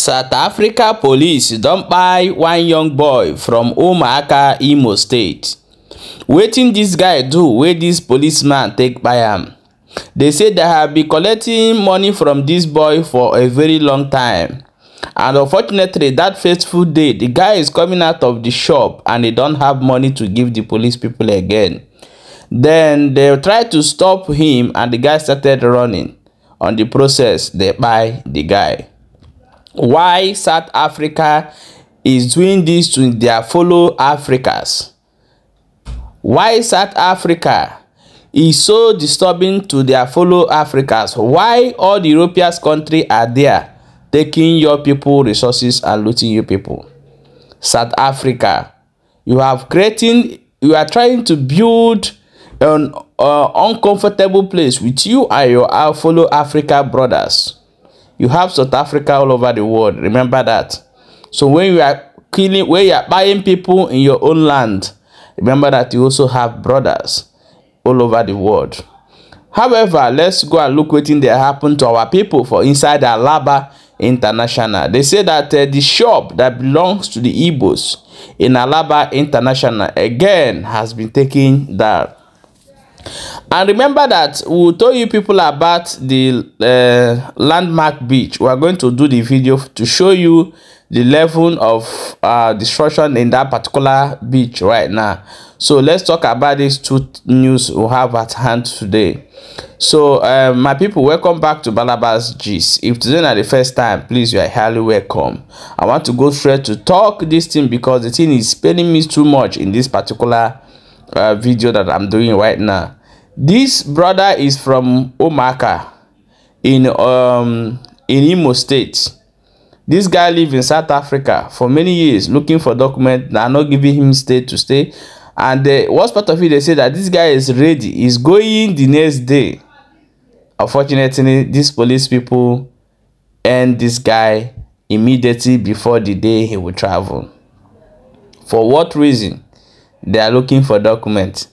South Africa police don kpai one young boy from Umuaka, Imo State. Wetin dis guy do wey dis policeman take kpai am? They say they have been collecting money from dis boy for a very long time. And unfortunately, that fateful day, the guy is coming out of the shop and they don't have money to give the police people again. Then they try to stop him and the guy started running. On the process, they kpai the guy why South Africa is doing this to their fellow Africans. Why South Africa is so disturbing to their fellow Africans. Why all the European countries are there taking your people resources and looting your people. South Africa, you have creating, you are trying to build an uh, uncomfortable place with you and your fellow Africa brothers. You have South Africa all over the world. Remember that. So when you are killing, when you are buying people in your own land, remember that you also have brothers all over the world. However, let's go and look what thing that happened to our people for inside Alaba International. They say that uh, the shop that belongs to the Igbos in Alaba International again has been taken down. And remember that we told you people about the uh, landmark beach. We are going to do the video to show you the level of uh, destruction in that particular beach right now. So let's talk about these two news we have at hand today. So uh, my people, welcome back to Balabas G's. If today not the first time, please you are highly welcome. I want to go straight to talk this thing because the thing is spilling me too much in this particular uh, video that I'm doing right now. This brother is from Omaka in um in Imo State. This guy lived in South Africa for many years looking for documents that are not giving him state to stay. And the uh, worst part of it, they say that this guy is ready. He's going the next day. Unfortunately, these police people end this guy immediately before the day he will travel. For what reason? They are looking for documents.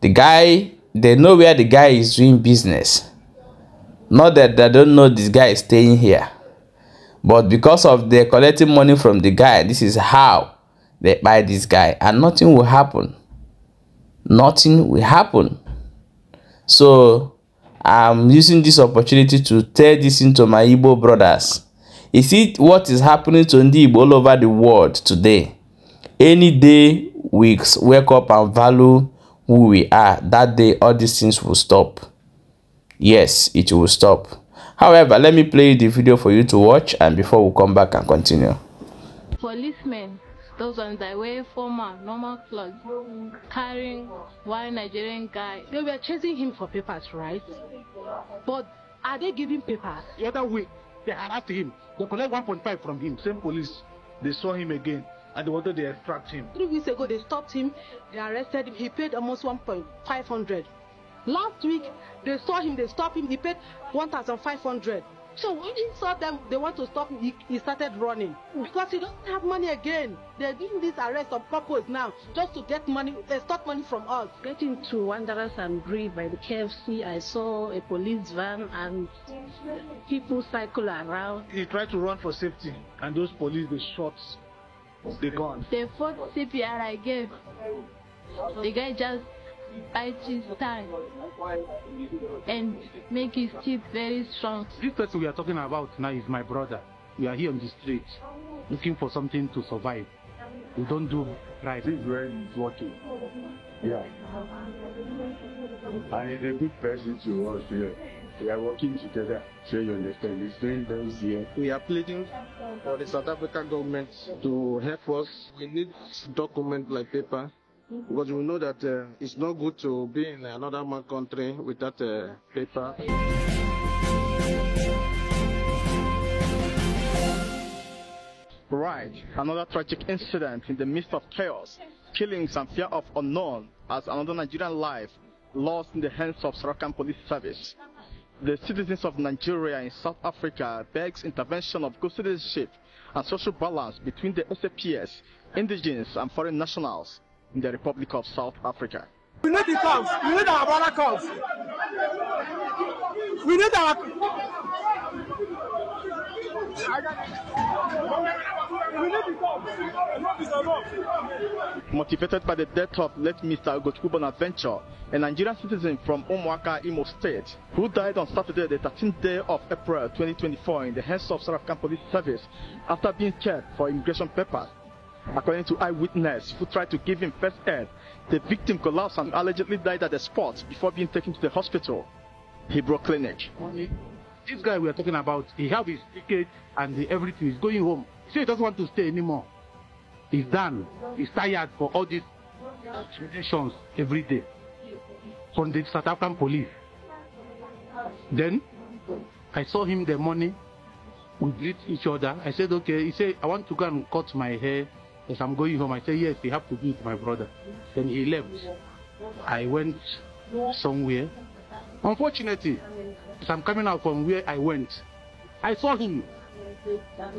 The guy they know where the guy is doing business. Not that they don't know this guy is staying here. But because of they're collecting money from the guy, this is how they buy this guy. And nothing will happen. Nothing will happen. So I'm using this opportunity to tell this into my Igbo brothers. Is it what is happening to Ndib all over the world today? Any day weeks, wake up and value who we are that day all these things will stop yes it will stop however let me play the video for you to watch and before we come back and continue policemen those ones that wear former normal clothes carrying one nigerian guy they were chasing him for papers right but are they giving papers the other way they harassed him they collect 1.5 from him same police they saw him again and they wanted to extract him. Three weeks ago, they stopped him, they arrested him, he paid almost 1,500. Last week, they saw him, they stopped him, he paid 1,500. So when he saw them, they want to stop him, he, he started running. Because he doesn't have money again. They're doing this arrest on purpose now, just to get money, extort uh, money from us. Getting to Wanderers and Bree by the KFC, I saw a police van and people cycle around. He tried to run for safety, and those police, they shot They gone. The fourth CPR I gave, the guy just bite his tongue and make his teeth very strong. This person we are talking about now is my brother. We are here on the street looking for something to survive. We don't do right. This is where it's working. Yeah. And he's a good person to us here. We are working together, so you understand. It's here. We are pleading for the South African government to help us. We need document like paper because we know that uh, it's not good to be in another country without uh, paper. Right, another tragic incident in the midst of chaos killings and fear of unknown as another Nigerian life lost in the hands of Sarakan Police Service. The citizens of Nigeria and South Africa begs intervention of good citizenship and social balance between the SAPS, indigenous and foreign nationals in the Republic of South Africa. We need the cops. We need our brother cops. We need our... Motivated by the death of late Mr. Ogochukwu Bonaventure, a Nigerian citizen from Omuaka Imo State, who died on Saturday, the 13th day of April 2024, in the hands of African Police Service after being checked for immigration papers. According to eyewitness who tried to give him first aid, the victim collapsed and allegedly died at the spot before being taken to the hospital, Hebrew Clinic. This guy we are talking about, he have his ticket and everything. He's going home. So he doesn't want to stay anymore. He's done. He's tired for all these intimidations every day from the South African police. Then I saw him the morning. We greet each other. I said, okay. He said, I want to go and cut my hair as I'm going home. I said, yes, you have to do it, my brother. Then he left. I went somewhere. Unfortunately, as I'm coming out from where I went, I saw him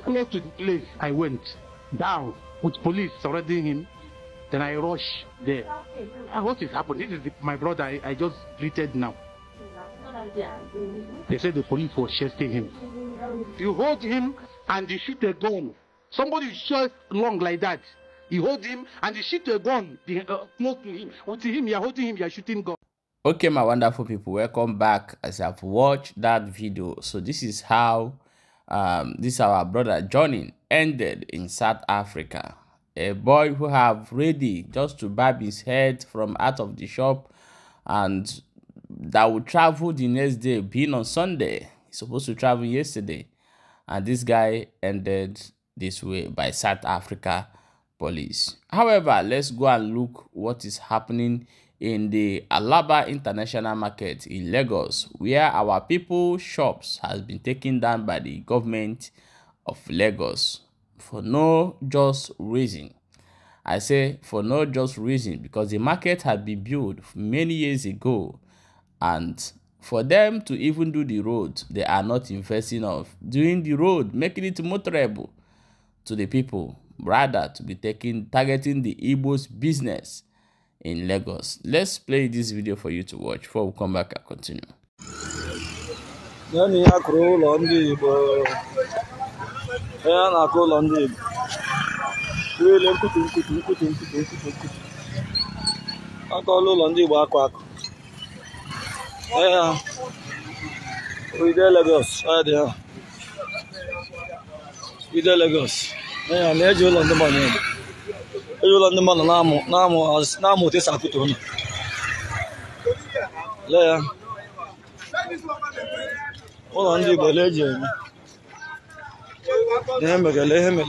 Close to the place I went down with police surrounding him. Then I rush there. Ah, what is happening? This is the, my brother I, I just greeted now. They said the police was chasing him. You hold him and you shoot a gun. Somebody shot long like that. You hold him and you shoot a gun uh, close to him. with him, you are holding him, You are shooting gun. Okay, my wonderful people, welcome back as I've watched that video. So this is how um, this our brother Johnny ended in South Africa. A boy who have ready just to barb his head from out of the shop and that will travel the next day, being on Sunday. He's supposed to travel yesterday. And this guy ended this way by South Africa police. However, let's go and look what is happening in the Alaba International Market in Lagos, where our people shops has been taken down by the government of Lagos for no just reason. I say for no just reason because the market had been built many years ago and for them to even do the road they are not investing of doing the road making it motorable to the people rather to be taking targeting the Igbo's business in Lagos. Let's play this video for you to watch before we come back and continue. Onye na Lagos dị ha ide Lagos na-eji ụlọ ndị ụlọ ndị mmadụ na-amụ na-amụ na-amụ otu esi akụtu ụlọ lee ya ụlọ ndị Igbo lee eji eme ihe mere lee ihe mere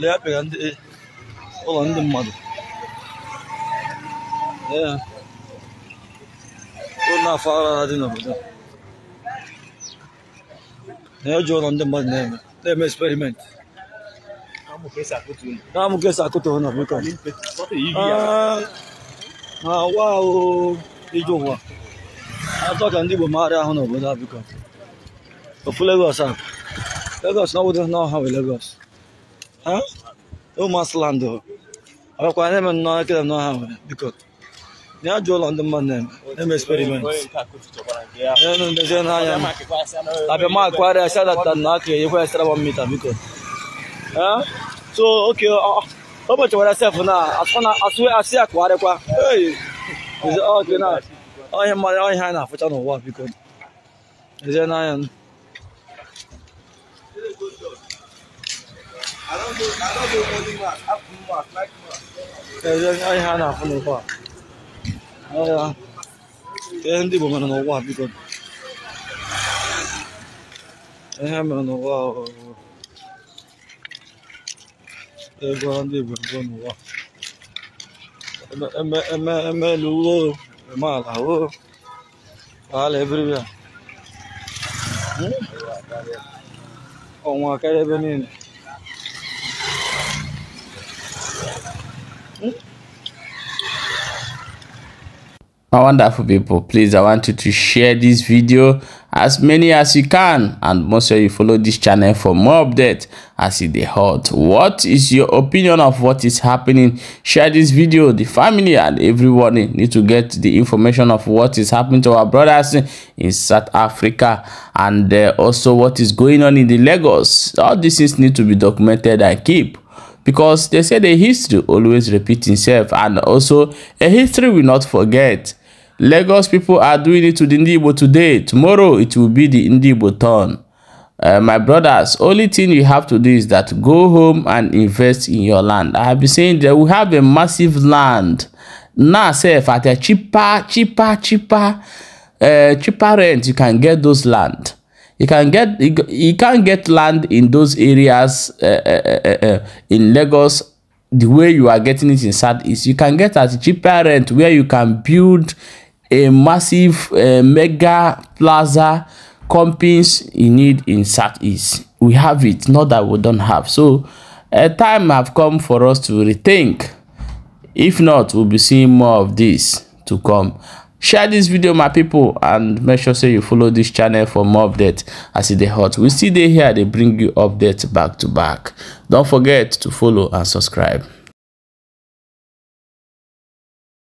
lee apịara ụlọ ndị mmadụ lee ya ụlọ afọ ara dị n'obodo na-eji e ụlọ ndị mmadụ na-eme na-eme ká mú kẹsà kó tó náà mi kàn. àwa o ijó wa atọ́ka ndị Igbo maara ahụ n'obodo abịkọ ofu Lagos a Lagos na obodo na ọha bụ Lagos ha ụmụasland ọkwa na-eme nnọọ ekele n'ọha nwere biko na ya jụọ ụlọ ndị mmadụ na-eme experiment na-eme ndezi n'anya abịamakwarịa sadatan na aka enyekwa ya sara mita biko so okay ọ ọ bọchị were sef na asị ya kụgharịkwa ọhịa mmadụ ọhịa anyị na-afụcha n'ụwa biko ezie n'anya ezie ọhịa a na-afụ n'ụwa ọhịa ihe ndị Igbo mere n'ụwa biko ihe mere n'ụwa ego ndị igbo mbụ n'ụwa eme elu wo eme ala wo ala ebiribi a ọnwa karịa ebe niile my wonderful people please i want you to share this video as many as you can and most sure you follow this channel for more updates as it they hot what is your opinion of what is happening share this video the family and everyone need to get the information of what is happening to our brothers in south africa and uh, also what is going on in the lagos all these things need to be documented and keep because they say the history always repeats itself and also a history will not forget Lagos people are doing it to the Ndibo today. Tomorrow it will be the Ndibo turn. Uh, my brothers, only thing you have to do is that go home and invest in your land. I have been saying that we have a massive land now self at a cheaper, cheaper, cheaper, uh, cheaper rent you can get those land. You can get you, you can get land in those areas uh uh, uh, uh, uh, in Lagos the way you are getting it in Southeast, you can get at cheaper rent where you can build a massive uh, mega plaza companies in need in Southeast. We have it, not that we don't have. So a time have come for us to rethink. If not, we'll be seeing more of this to come. Share this video, my people, and make sure say you follow this channel for more updates as it dey hot. We see they here, they bring you updates back to back. Don't forget to follow and subscribe.